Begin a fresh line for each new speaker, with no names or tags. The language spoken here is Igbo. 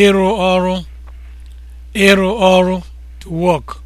ịrụ ọrụ ịrụ ọrụ to work